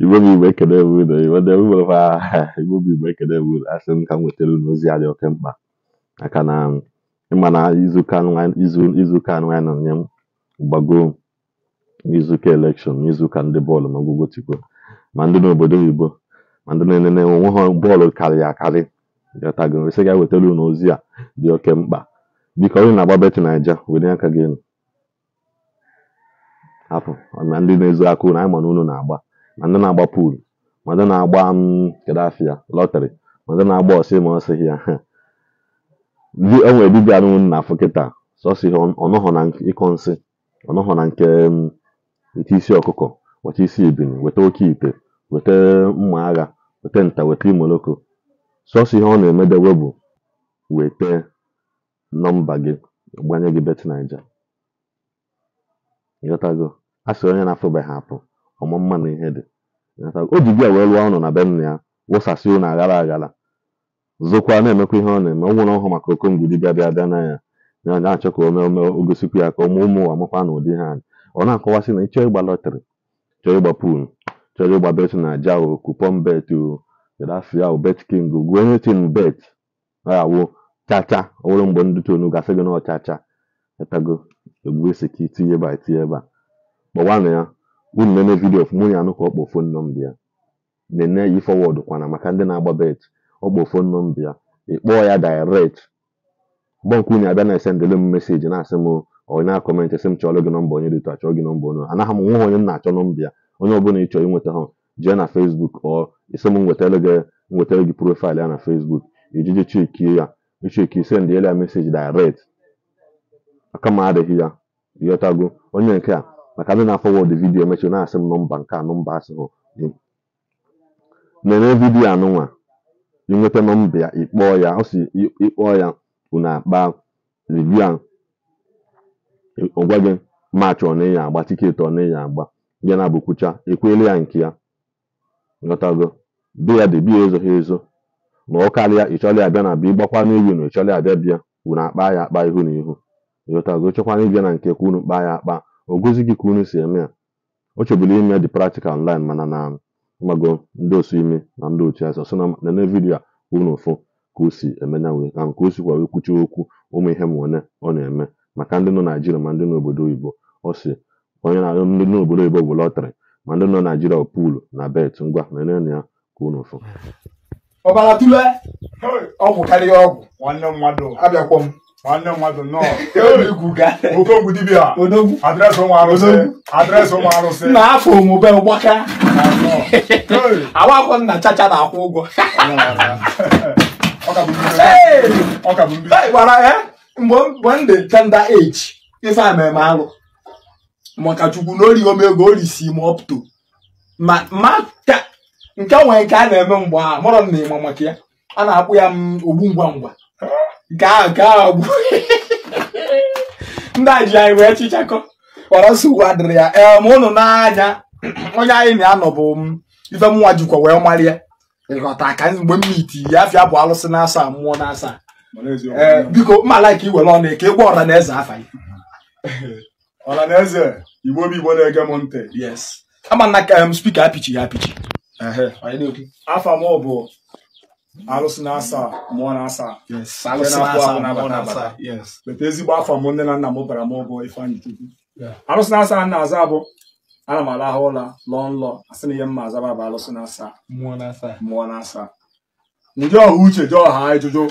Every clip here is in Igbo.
igbo m igbo ekene ewudo igbo m igbo ekene ewudo asị m ka m wetara unu ozi a dị oke mkpa maka na izu na nwa anyị na nye m gbago n'izuụka elekshọn n'izuụka ndị bọọlụ ma gbogotigbo ma ndị obodo oyibo ma ndị na-enene onwe ha bọọlụ karịrị akarị gatago esi unu ozi a dị oke mkpa biko na-agba beti naija were aka afọ na ndị na-ezu aka unu anyị na unu na-agba ma ndị na-agba puulu ma ndị na-agba um, kedu afịa lọtrị ma ndị na-agba ọsị ma ọ sịghị ya ndị o nwere dibịa nụ na afọ kịta sọsị ọnọghọ na ịkọ nsị ọnọghọ na nke um, nke isi ọkụkọ weta isi ibin weta oke ite weta mma agha weta nta weta imoloko sọsọ ihe ọ na-emedewe bụ weta nọmba gị gbanye gị bet naija ịghọtago a sị onye na-afụbeghị apụ ọmụmma na ihe dị o ji bịa wee lụọ ọnụ na be nna ya wụsasị ụnụ aghara aghara zokwa na-emekwa ihe ọ na-eme ọ ọhụrụ ọhụụ maka okongudi bịa bịa bịa na ya ya na-achọ ka ome ome ogosikwu ya ka ọmụ ụmụ ụwa makwa na ụdị ha ọ na-akọwasị na ịchọọ ịgba lọtrị chọọ ịgba pul chọrọ ịgba bet na aja o kupon bet o ya o bet king gu onye tin bet awụ chacha ọ nwere mgbe ndị tonu gasị gị na ọchacha etago egbugesi ka tinye eba a itinye ya unu nene vidio fụ mụ ya anụ ka ọ kpọ fon nọmba ya nene yi fọwọdụ kwana maka ndị na-agba bet ọ kpọ fon nọmba ya ịkpọọ ya direct bọnk unu abịa na-esendele m meseji na-asị m onye akọmentị sị m chọrọ gị nọmba onye dịtụ achọ gị nọmba onye anaghị m nwa onye m na-achọ nọmba ya onye bụla ịchọ ịnweta ha jee na fesbuk ọ isi m nwetara gị nwetara gị profaịlụ ya na fesbuk ijiji chekie ya ya meseji direct aka adịghị ya ịghọtago onye nke a maka ndị na-afọwọdụ afọ vidiyo emechi na-asị m nọmba nke a nọmba asịhụ gị mere vidiyo anụnwa inweta nọmba ya ịkpọọ ya ọ ịkpọ ya unu akpa rivia ọgwa gị maachị ọ na-enye agba tiketi ọ na-enye agba ya na abụkwucha ekwele ya nke ya ghọtago be ya dị biya ezoghị ezo ma ọ karịa ịchọla ya bịa na bịa ịgbakwa n'igwe na ịchọla ya bịa bịa unu akpa ya akpa ihu na ihu yota chọkwana ịbịa na nke kwunu kpaa ya akpa ogozi gị ka unu si eme ya o chebụla ime dị praktikal online mana na mgbago ndị osu ime na ndị otu ya sọ na nene vidiyo a ụfụ ka o si emenya wee ka nke o sikwa wee kwuchi okwu ụmụ ihe ma one ọ na-eme maka ndị nọ naijiria ma ndị nọ obodo oyibo ọ onye na ndị nọ obodo oyibo bụ lọtrị ma ndị nọ naijiria pụụlụ na bet ngwa na ya ka unu ụfụ ọgwụ karịa ọgwụ nwanne mmadụ abịakwọ m nwanne m nwadụ nnọọ okongwu dibia adresị ụmụ arụsị adresị ụmụ arụsị na afọ omume mgbaka awakwọ nna chacha na-akwụ ụgwọ gwara ya mgbe m dị tender age ife a meme alụ maka chukwu na orighị omego orisi m up to ma nke nwere nke a na-eme mgbe a mụrọ m na ịma maka ya a na-akpụ ya ogbu ngwa ngwa gaa gaa ọgwụ ndị a anyị wee chichakọ ọrọsọ uwe adịrị ya ee ma ụnụ n'anya onye anyị na-anọ bụ ife mụnwa jikwa wee marịa ịghọta ka mgbe m miti ya afịa bụ alụsị na-asa mmụọ na-asa ee biko mmala ka iwere ọnụ eke egwu ọra na eze afa gị ọra na eze igbo bụ igbo na-ege m ntị yes ama spika apichi ya apichi afa m bụ alụsị na-asa mụọ na-asa weta ezigbo afọ m nne na nna m bara m ụgwọ ifeanyị chukwu alụsị na-asa nna aza bụ. ana m alahụ ụla lọọ nlọ asị na ihe mma azaba bụ alụsị na-asa mụọ na-asa ndị ọha uche ji ọha ịjụjụ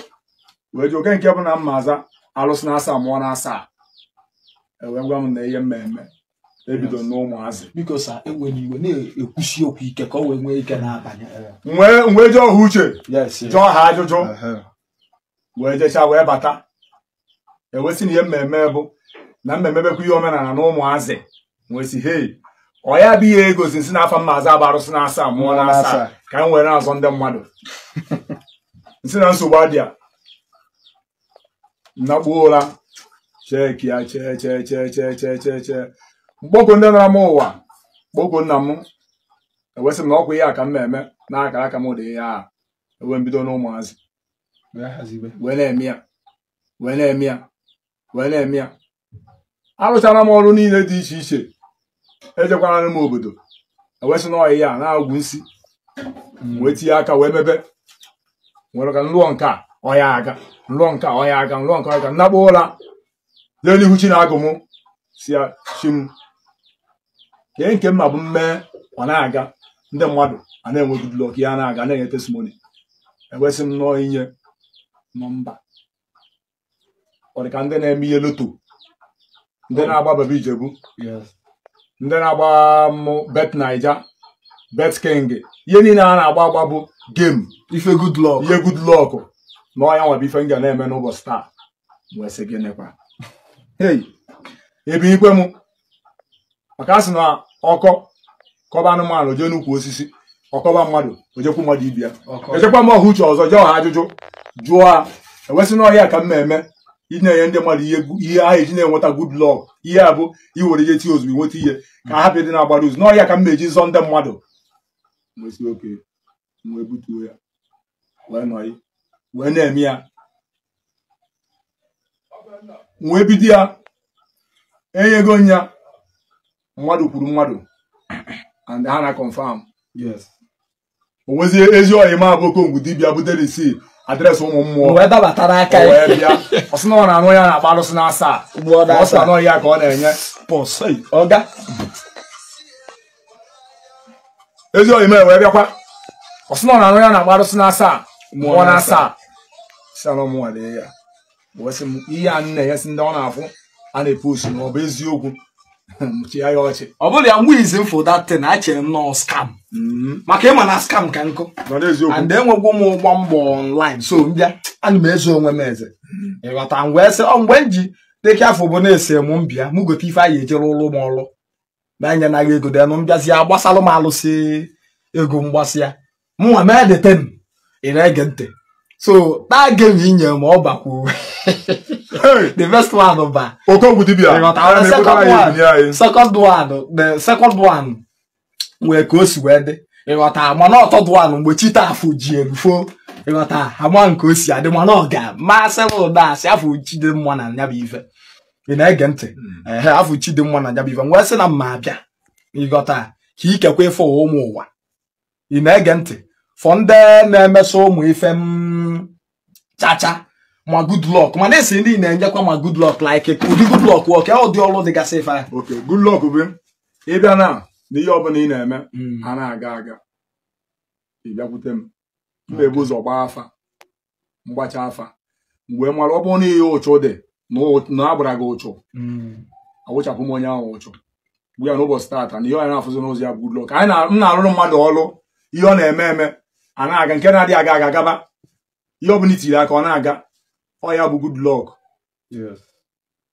wee jụ oke nke bụ na mma aza alụsị na-asa mụọ na-asa ewee gwa m na ihe mmemme ebido n'ụmụazị biko sa enweghị iwe na-ekwusi okwu ike ka o wee nwee ike na eh. nwee wee jee ọha uche jụọ ha ajụjụ wee jecha wee bata ewesị na ihe mmemme bụ na mmemme bekwa ihe omenala na ụmụazị nwesi hei ọ ya bụ ihe egozi nsi na afa mmazị agba arụsị na asaa mụọ na asaa ka m were na-azọ ndị mmadụ nsi na nsogbu adịa nnakpuo ụra cheki ya chee chee chee chee chee chee mkpogo ndị nara m ụwa mkpogo nna m ewesị m na ọgwụ ihe a ka m na-eme n'aka aka m dị ya a ewe mbido n'ụmụazị wee na-eme ya wee na-eme ya wee na-eme ya arụchara m ọrụ niile dị iche iche ejekwara m obodo ewesị na ọyị ya na-agwụ nsi mm. wee tinye aka wee mebe nwere ka nlụọ nke a ọya aga nlụọ nke a ọya aga nlụọ nke ọya aga nnakpo ụra jee n'ihu chi na agụ m si ya chi m kee nke mma bụ mmee ọ na-aga ndị mmadụ a na-enwe Goodluck ya na-aga na-enye testimony enwesị m nnọọ inye nọmba ọ dị ka ndị na-eme ihe loto ndị na-agba Baba ndị na-agba mụ bet naija bet king ihe niile a na-agba agba bụ gem ife Goodluck ihe Goodluck na ọnya nwere ife m na-eme n'ụbọchị taa wee gịnịkwa hey ebinikwe m maka a sị na ọkọ kọba anụmanụ jee n'ukwu osisi ọkọba mmadụ ojekwu mmadụ ibi ya ejekwa m ọha uche ọzọ jee ọha ajụjụ jụọ ha ewesị n'ọhịa ka m na-eme enye ndị mmadụ ihe ha eji na-enweta gud lọg ihe a bụ iwere ihe tii ozugbo nweta ihe ka hapụ dị na-agbara ụzọ n'ọhịa ka m na-eji zọ ndị mmadụ wee na-eme ya wee bido ya enyego nya mmadụ kwuru mmadụ and ha na confam o nwezie ezi ọhịa ma bụ okongwu dibịa butere isi adresị ụmụ mmụọ wee dabatara aka ya bịa ọsị na ọ na-anụ ya na-agba arụsị na asaa ọ sị na ọhịa ka ọ na-enye pọsị ọga ezi ọhịa ma wee bịakwa ọsị na ọ na-anụ ya na-agba arụsị na asaa mmụọ na asaa si anọ mụnwa lee ya ihe a nna ya si ndị ọ na-afụ a na-epostu na ọ bụ eziokwu ọchị ọ bụrụ ya nwa izi m for that thing achere m nọọ scam mm-hmm. maka ịma na skam ka nkụ and enwegwo m ụgbọ mbọ ọnlaịn so mbịa ana m eze onwe m eze mm-hmm. ịghọta ngwa ese oh, mgbe m ji teke afọ bụ na-ese m mbịa m gote ife anyị ejere ụlọ m ọrụ na-enye naghị ego denụ mbịazi ya gbasalụ m alụsị ego mgbasị ya mụnwa mee deten ị na-ege ntị so taa gem inye m ọ bakwu the first one ba okogwu dibia second one the second one wee ka o si wee dị ịghọta na ọtọ duan mgbe chita afọ ji erufo ịghọta ama nke o si adị mana ọ ga masị ụda asị afọ chidimma na nyabụ ife ị na-ege ntị hmm. ehe afọ chidimma na nyabụ ife m wee sị na mma abịa ịghọta ka ikekwe ife ụmụ ụwa ị na-ege ntị fọ ndị na-emesọ ụmụ ife m chacha ma good luck mana esi ndị na-enyekwa ma good luck like ụdị good luck wọk ya ụdị ọrụ dịgasị ife ok good luck bụ ịbịa na na ihe ọbụla ị na-eme ana hmm. na-aga aga ịbịakwute m m na ụzọ gbaa afa mgbacha afa mgbe mara ọ bụrụ na ihe ụchụ dị na agbara gị ocho hmm. onye ahụ ụchụ ya ụbọchị taata na ihe ọ na ya good luck m na-arụrụ mmadụ ọrụ ihe ọ na-eme eme ana aga nke na aga aga agaba ihe aka ọ na-aga ọ ya bụ Goodluck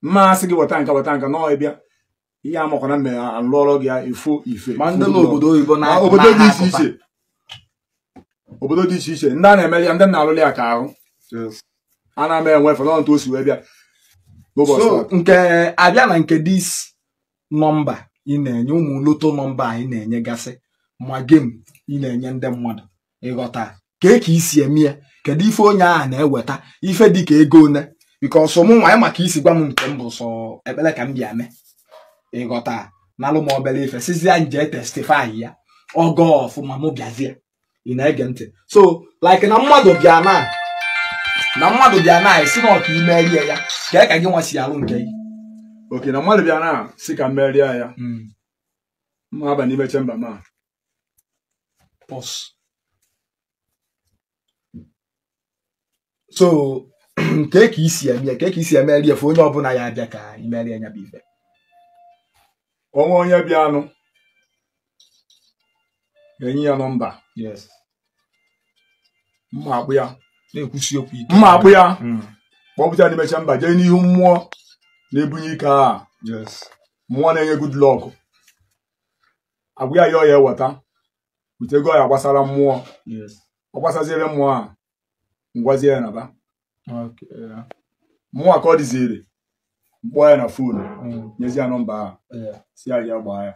mmasị gị wọta nka wọta nka nọọ ịbịa ihe a makwana mme alụọrọ gị ifo ife obodo dị iche iche obodo dị iche iche ndị a na-eme ya ndị na-alụli ya ka ahụ a na-ama enwefe nọ ntu o wee bịa so nke abịa na nke dis nọmba ị na-enye ụmụ loto nọmba anyị na-enye gasị ma gem ị na-enye ndị mmadụ ịghọta ka ka isi eme ya kedu ife onye ahụ na-eweta ife dika ego one bikos mụ nwa ya maka isi gwa m nke m bụ sọ ekpele ka m bịa mee ịghọta na m ife sizia nje testifai ya ogo ọfụma mụ bịazie ị na-ege ntị so like na mmadụ bịa na na mmadụ bịa na esi na ọka imerie ya ka ka gị nwa si alụ nke gị oke na mmadụ bịa na si ka merie ya ma hmm. aba n'ime chemba ma pos so nke ka isi eme ka isi emeri efu onye ọbụla ya abịa ka imeri anya bụ ife onwe onye bịanụ ga-enye ya nọmba mma akpụ ya na-ekwusi okwu ya hmm. kpọpụta n'imecha mba jee n'ihu mmụọ na-ebunye ike a mmụọ na-enye good luck agwụ ya ya ọ ya eweta wetego ya gbasara mmụọ ọ gbasaziere mmụọ a ngwazie ya naba mụnwa ka ọ dịziri mkpọọ ya na fonu mm. nyezi ya nọmba ahụ si ya ya gbaa ya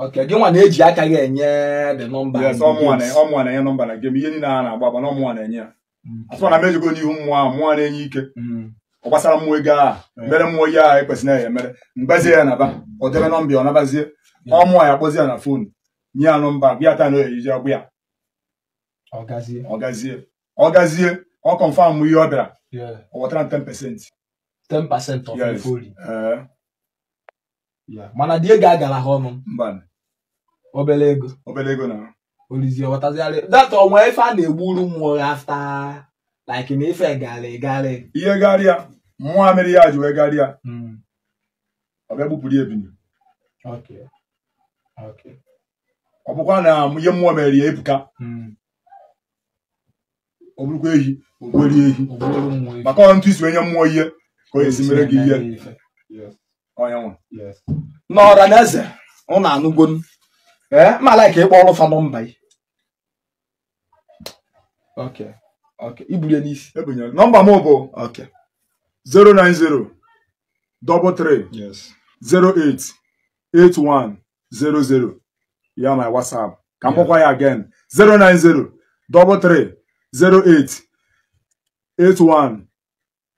Okay, gị nwa na-eji aka gị enye the number. Yes, na-enye nọmba na gem ihe niile a na-agba agba na ọmụnwa na-enye ya. Mm. Asọ na mejigo n'ihu mmụọ ahụ mmụọ na-enye ike. Mm. Ọ gbasara mmụọ ego ahụ mere mmụọ ihe ahụ ekwesịrị ya emere mgbazie ya naba ọ debe nọmba ọ nabazie ọmụnwa ya akpọzie ya na fonu nye ya nọmba bịa ta na oyiyi agba ya ọ gazie ọ gazie ọ kọnfam ihe ọ bịara ọ wetara 10 pasentị 10 pasentị of ife ori eh. mana dị ga agara ha ọnụ obere ego obere ego na olizi ọwatazigharị that ọnwa ife a na-egburu mmụọ afta like na ife garị garị ihe garịa ya ji wee garịa hmm. ọ bịa ya ọ bụkwa na ihe ebuka hmm. ọ ehi ogweri ehi maka ọ ntụ isi onye mmụọ ihe ka o esi mere gị ihe n'ọra na eze ụ na anụgo ma laiki ịkpọ ọrụ fanọ mba ibulie n'isi e nọmba m bụ 090 33 08 8100 ya WhatsApp ka m kpọkwa ya 090 08 81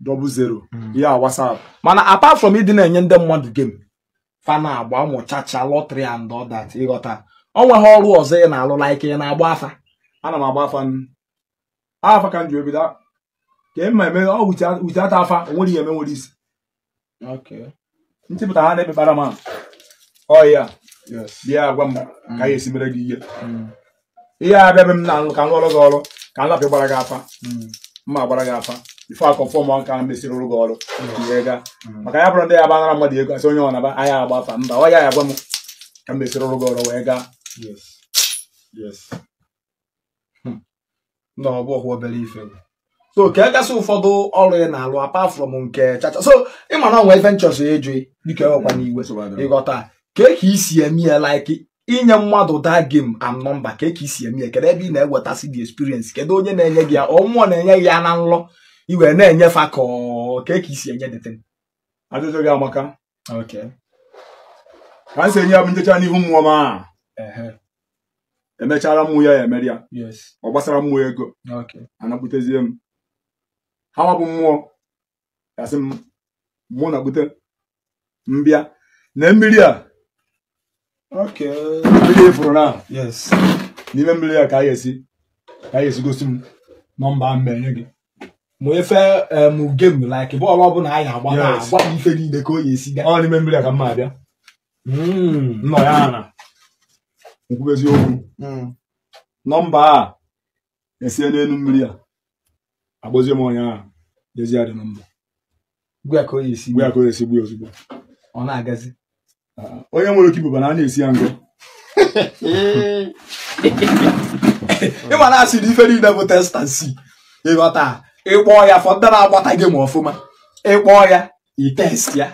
00 ya WhatsApp mana apart from ịdị na-enye ndị mmadụ game fana agba ụmụ chacha lọtrị and all that ịghọta ọ nweghị ọrụ ọzọ ị na-alụ like ị na-agba afa ana m agba afa afa ka m ji ebido ka ị e ma eme ọ wụchata afa onwere ihe eme nwere isi nchepụta ha na-emekpara m ọya bịa agwa m ka ya hmm. esi mere gị ihe hmm. ihe abịa be m na ka m ọrụ gị ọrụ ka nlapị gbara gị afa mma gbara gị afa ife akọ fọm ka mesịrị ụrụ gị ọrụ maka ya bụrụ ndị ya banara mmadụ ego asị onye ọnaba anya agba afa mba ọ ya ya gwa m ka m mesịrị ụrụ gị ọrụ wee gaa hmm. so ka e gasị ụfọdụ ọrụ ị na-alụ apa from nke chacha so ịma na onwe ife nchọsọ eju dịka enwekwa n'iwe ịghọta ka e ka isi eme ya like inye mmadụ daa m and number ka eke isi eme ya kedu ebe ị na-ewetasị the experience kedu onye na-enye gị ya ọ na-enye gị ya na nlọ iwe na-enyefa ka eke isi enye dete ajụjụ gị amaka ka m enye ya bụ njecha n'ihu mmụọ ma emechara mmụ ya ya emere ya ọ gbasara mmụọ ego anakputezie m ha bụ mmụọ gasị m mụ na-akpute mbịa na mmiri a fụrụ na yes n'ime mmiri ya ka a ga-esi ka a ga-esi gosi m nọmba m enye gị ma efe mugem like bọọlụ ọ bụla anyị agba agba m ife niile ka o ya esi gaa ọ n'ime mmiri ya ka m abịa hmm. nọ ya na nkwube eziokwu hmm. nọmba a esie n'elu mmiri a agbazie m onye ahụ dezie dị nọmba gwa ka o ya esi gwa ka o ya esi gbuo ozugbo ọ na-agazi Ah, onye nwere oke ibuba na a na-esi ya ngọ ịma na asị na ife niile bụ testansi ịghọta ịkpọọ ya fọ ndị na-agbata gị ma ọfụma ịkpọọ ya test ya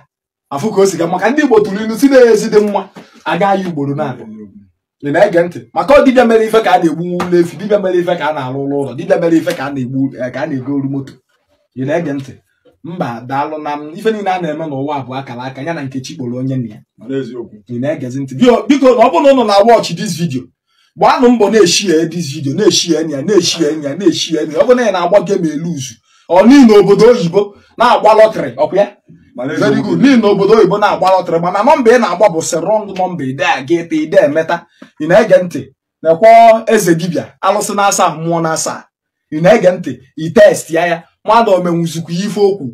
afụ ka o si ga maka ndị Igbo tụrụ ilu si na ezi dị mma agaghị ugboro na-abịa ị na-ege ntị maka ọ dibịa mere ife ka a na-egbu n'efi dibịa mere ife ka a na-alụ ụlọ ụlọ dibịa mere ife ka a na-egbu ka a na-ego moto ị na-ege ntị mba daalụ na m ife niile a na-eme n'ụwa bụ akara aka ya na nkechi kporo onye nna ya na-egezi ntị biko na ọ bụrụ na ụnụ na-awọchị dis vidio gbaanụ mbọ na-eshie dis vidio na-eshie enyi ya na-eshie enyi ya na-eshie enyi ya ọ bụ na ya na-agba elu uzu ọ niile obodo oyibo na-agba lọtrị ọkwa ya obodo oyibo na-agba lọtrị mana nọmba ị na-agba bụ si rọng nọmba ide a ga ete ide emeta ị na-ege ntị na-ekwọ eze dibịa alụsị na-asa mmụọ na-asa ị na-ege ntị i test ya ya mmadụ omenwuzikwa ife okwu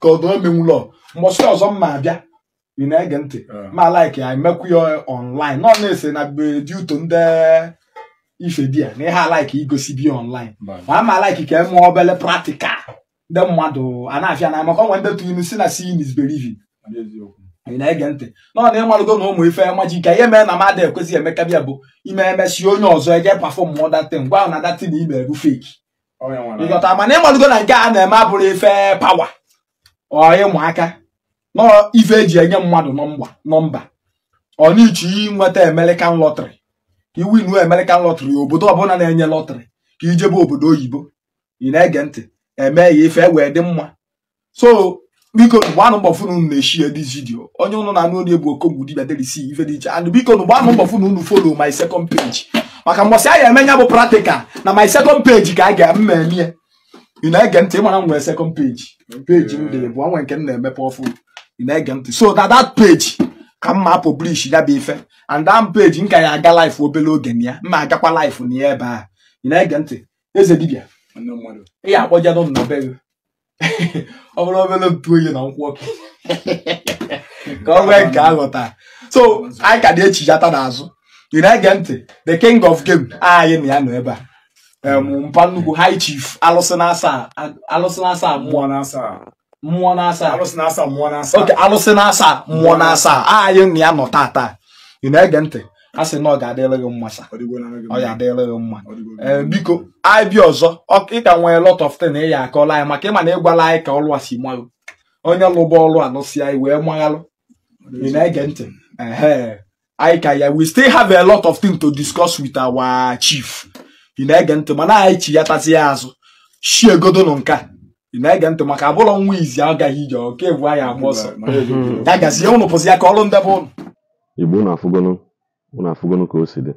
ka ọdụ omenwulọ mgbọsị ọzọ m mma abịa ị na-ege ntị ah. ma like ya emekwu ya online nọ na-ese na beduto ndị ife di ya na ihe alaiki igosi bi online ma ama alaiki ka eme obele practical ndị mmadụ a na-afịa na maka ọnwe ndị tụrụ si na sin is believing ị na-ege ntị nọ na na ụmụ ife maji ka ihe mee na mmadụ ekwesịghị emekabịa bụ ime emesi onye ọzọ eje pafọm datin gwa na datin ime bụ feki ịghọta mana ịmalugo na nke a na-eme abụrụ ife pawa ọ ịmụaka nọ ife eji enye mmadụ nọmba ọ n'iche inweta American lọtrị iwu iwinu American lọtrị obodo ọbụla na-enye lọtrị ka ijebe obodo oyibo ị na-ege ntị eme ya ife wee dị mma so biko gbanụ mbọ funu unu na-eshi this video onye ụnụ na anụ onye bụ okogbu dibia derisi ife dị iche and biko gbanụ mbọ funu unu follow my second page maka mbọsị a ga-emenya bụ practical na my second page ka a ga m emie ị na-ege ntị ịmara m nwere second page page m dị bụ nwe nke m na-emepe ọfụ ị na-ege ntị so na that page ka mma publish ya bụ ife and that page m ka ya aga life obere oge na ya mma agakwa life na ya ebe a ị na-ege ntị eze dibịa ị ga-akpọjado m na be gị ọ bụrụ obere ntu oyi na nkwụ ọkụ ka ọ nwee nke aghọta so anyị ka na-echijata n'azụ ị na-ege ntị the king of game anyị ah, na ya nọ ebe a um, hmm. mpa nnukwu high chief alụsị na-asa mmụọ na-asa mmụọ na-asa mmụọ na-asa oke mmụọ na-asa anyị na ya nọ tata ị na-ege ntị a sị na ọ ga-adịrị gị mma sa ọ ga-adịrị gị mma biko anyị bi ọzọ ị ka nwee lot of thing ị eh, ya akọla anyị maka ịma na ịgwala anyị ka ọlụ a si malụ onye lụba ọlụ alụsị anyị wee maghalụ ị na-ege ntị ya we still have a lot of things to discuss with our chief ị na-ege ntị mana anyị chi ya tasị ya azụ shie godo nke ị na-ege ntị maka abụrọ nwa izi agaghị ije ọka ebu anyị agba ọsọ ya gazie ụnụ pụzi ya ka ọrụ ndebe ụnụ igbo ụnụ afụgonu ụnụ afụgonu ka o si dị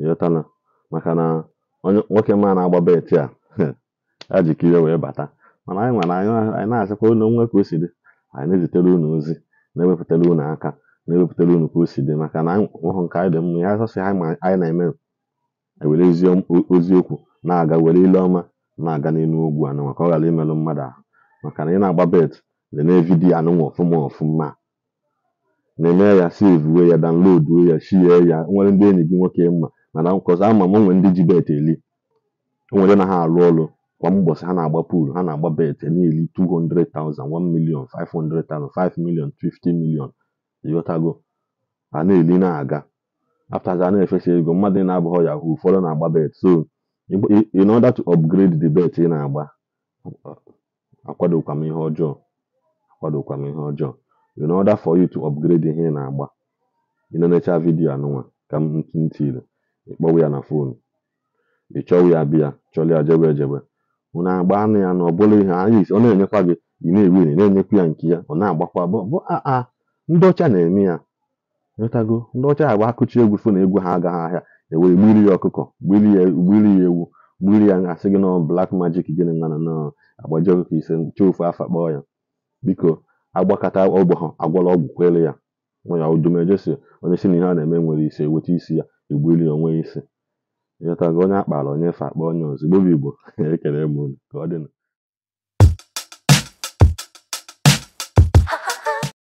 ịghọtana maka na nwoke ma na-agba beti a a jikere wee bata mana anyị nwere anyị na-asịkwa ụlọ nwa ka o si dị anyị na-ezitere ụnụ ozi na-ewepụtara ụnụ aka na-ewepụtara unu ka o si dị maka na ọhụ nke anyị dị mma ya asọsị ha ma anyị na-eme e were oziokwu na-aga were ile ọma na-aga n'elu ogwu anụ maka ọ ghara imerụ mmadụ ahụ maka na ị na-agba bet dị na vidiyo anụnwa ọfụma ọfụma na-eme ya sevuwe ya danloduo ya shie ya nwere ndị enyi gị nwoke mma mana nkọzi ama m nwere ndị ji bet eli nwere na ha alụ ọrụ kwa mbọsị ha na-agba pool ha na-agba bet e na-eli 200,000 1 million 500,000 5 million 50 million ịghọtago ana eli na-aga after a na-efesa ego mmadụ na-abụghọ yahoo ụfọdụ na-agba bet so in order to upgrade the bet ị na-agba akwadokwa m ihe ọjọọ akwadokwa ihe ọjọọ in order for you to upgrade ihe ị na-agba ị na vidiyo anụnwa ka m ntiri ịkpọwa ya na fonu ị chọwa ya bịa chọrọ ya jebe ejebe na agba anụ ya na ọ bụla ihe anyị ọ na-enyekwa gị ị na-ewu na na-enyekwa ya nke ya ọ na-agbakwa bụ a ndị ọcha na-eme ya ịghọtago ndị ọcha agba akụchi egwu na egwu ha agaghị ahịa enwere gbiri ya ọkụkọ gbiri ya ya ewu gbiri ya asị gị nọ blak majik gịnị nana na agbaji ọkụkọ ise nche ofu afa kpọọ ya biko agbakọta ọgbọ ha agwala ọgwụ kwere ya nwa ya udumejesi onye si na ihe a na-eme nwere isi eweta isi ya egbiri ya onwe isi ịghọtago onye akpara onye fa akpa onye ọzọ igbo bụ igbo ekele m ka ọ dịnụ